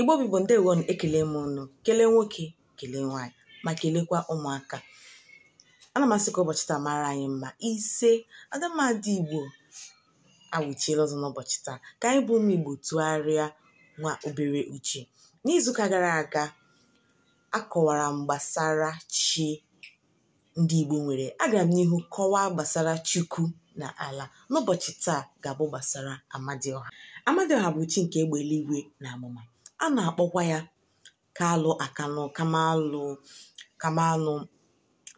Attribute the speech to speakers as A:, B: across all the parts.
A: igbo bụ ndewo ekele m unu kelee nwoke kelee nwaanyị ma kelekwa ụmụaka ana m asị ka ụbọchị taa mara anyị mma ise adamadị igbo awụchiela ọzọ n'ụbọchị taa ka anyị bụ ụmụ igbo tụgharịa nwa obere uche n'izuụka gara aga akọwara m gbasara chi ndị igbo nwere agara m n'ihu kọwaa gbasara chukwu na ala n'ụbọchị taa ga-abụ gbasara amadioha amadioha bụ chi nke egbe eluigwe na amụma a na-akpọkwa ya kalụ akanụ kamalụ kamalụ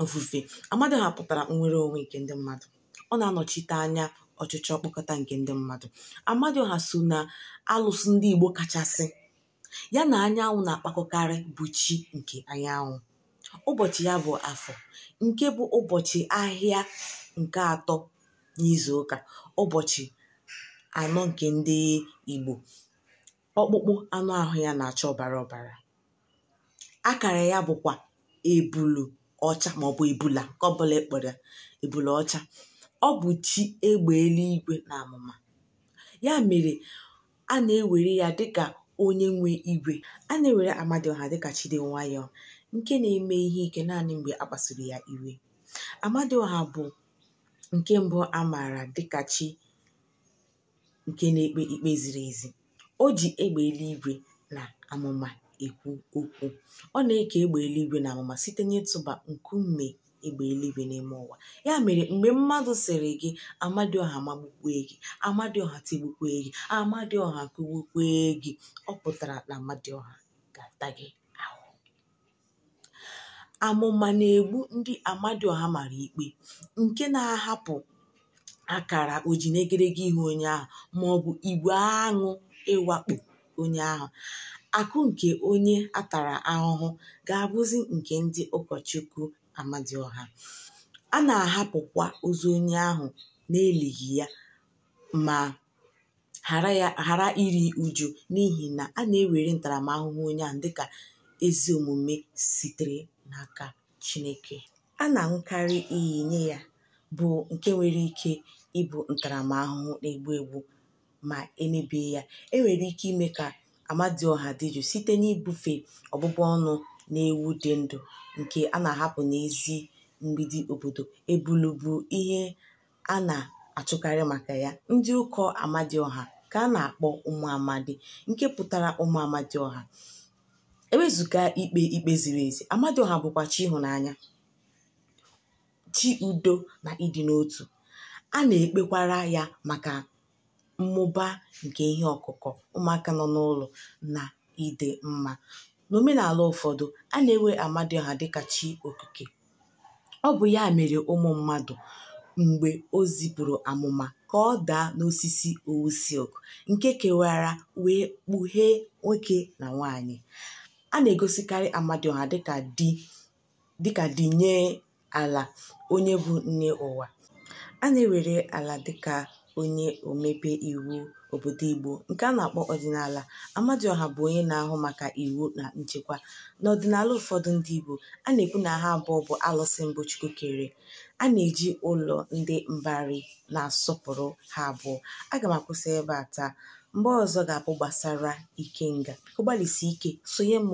A: ofufe amadioha pụtara nwere onwe nke ndị mmadụ ọ na-anọchite anya ọchịchị ọkpọkọta nke ndị mmadụ amadioha so na alụsụ ndị igbo kachasị ya na anyanwụ na-akpakọkarị bụ chi nke anyanwụ ụbọchị ya bụ afọ nke bụ ụbọchị ahịa nke atọ n'izu ụbọchị anọ nke ndị igbo ọkpụkpụ anụ ahụ ya na-acha ọbara ọbara akara ya bụkwa ebulu ọcha maọbụ ebula ka ọ bụla ọcha ọ bụ chi egbe eluigwe na amụma ya mere a na-ewere ya dịka onye nwe igwe a na-ewere Amadioha dịka chi dị nwayọọ nke na-eme ihe ike naanị mgbe a kpasuru ya iwe Amadioha bụ nke mbụ a maara dịka chi nke na-ekpe ikpe ziri ezi o ji egbe eluigwe na amụma ekwu okwu ọ na-eke egbe eluigwe na amụma site n'ịtụba nkume egbe eluigwe n'ime ụwa ya mere mgbe mmadụ sịrị gị amadioha magbukwee gị amadioha tigbukwee gị amadioha kugbukwee gị ọ pụtara na amadioha ga-ata gị ahụ amụma na-egbu ndị amadioha mara ikpe nke na-ahapụ akara oji n'egedege ihu onye ahụ ma ọ bụ igwe aṅụ ịwakpo onye ahụ akụ nke onye atara ahụhụ ga-abụzi nke ndị ụkọchukwu Amadioha a na-ahapụkwa ozu onye ahụ n'elighi ya ma ghara iri uju n'ihi na a na-ewere ntaramahụhụ onye ahụ dịka ezi omume sitere n'aka Chineke a na-aṅụkarị iyi nye ya bụ nke nwere ike ịbụ ntaramahụhụ na-egbu egbu ma emebie ya enwere ike ime ka amadioha dị jụụ site n'ibufe ọbụbụ ọnụ na ewu dị ndụ nke a na-ahapụ n'ezi mgbidi obodo ebulubu ihe a na-achụkarị maka ya ndị ụkọ amadioha ka a na-akpọ ụmụ amadi nke pụtara ụmụ amadioha ewezụga ikpe ikpe ziri ezi amadioha bụkwa chi ịhụnanya chi udo na ịdị n'otu a na-ekpekwara ya maka mmụba nke ihe ọkụkọ ụmụaka nọ n'ụlọ na ide mma n'omenala ụfọdụ a na enwe Amadioha dịka chi okike ọ bụ ya mere ụmụ mmadụ mgbe o zipụrụ amụma ka ọ daa n'osisi owu silk nke kewara wee kpughee nwoke na nwanyị a na-egosikarị Amadioha dịka di dịka di nye ala onye bụ nne ụwa a na-ewere ala dịka onye omebe iwu obodo Igbo nke a na-akpọ ọdịnala Amadioha bụ onye na-ahụ maka iwu na nchekwa n'ọdịnala ụfọdụ ndị Igbo a na-ekwu na ha abụọ bụ alụsị mbụ Chukwu kere a na-eji ụlọ ndị mbari na-asọpụrụ ha abụọ aga m akwụsị ebe a taa mgbe ọzọ ga-abụ gbasara Ikenga ọ gbalịsi ike sonye m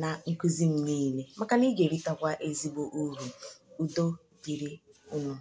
A: na nkụzi m niile maka na ị ga-eritakwa ezigbo uru udo dịrị unu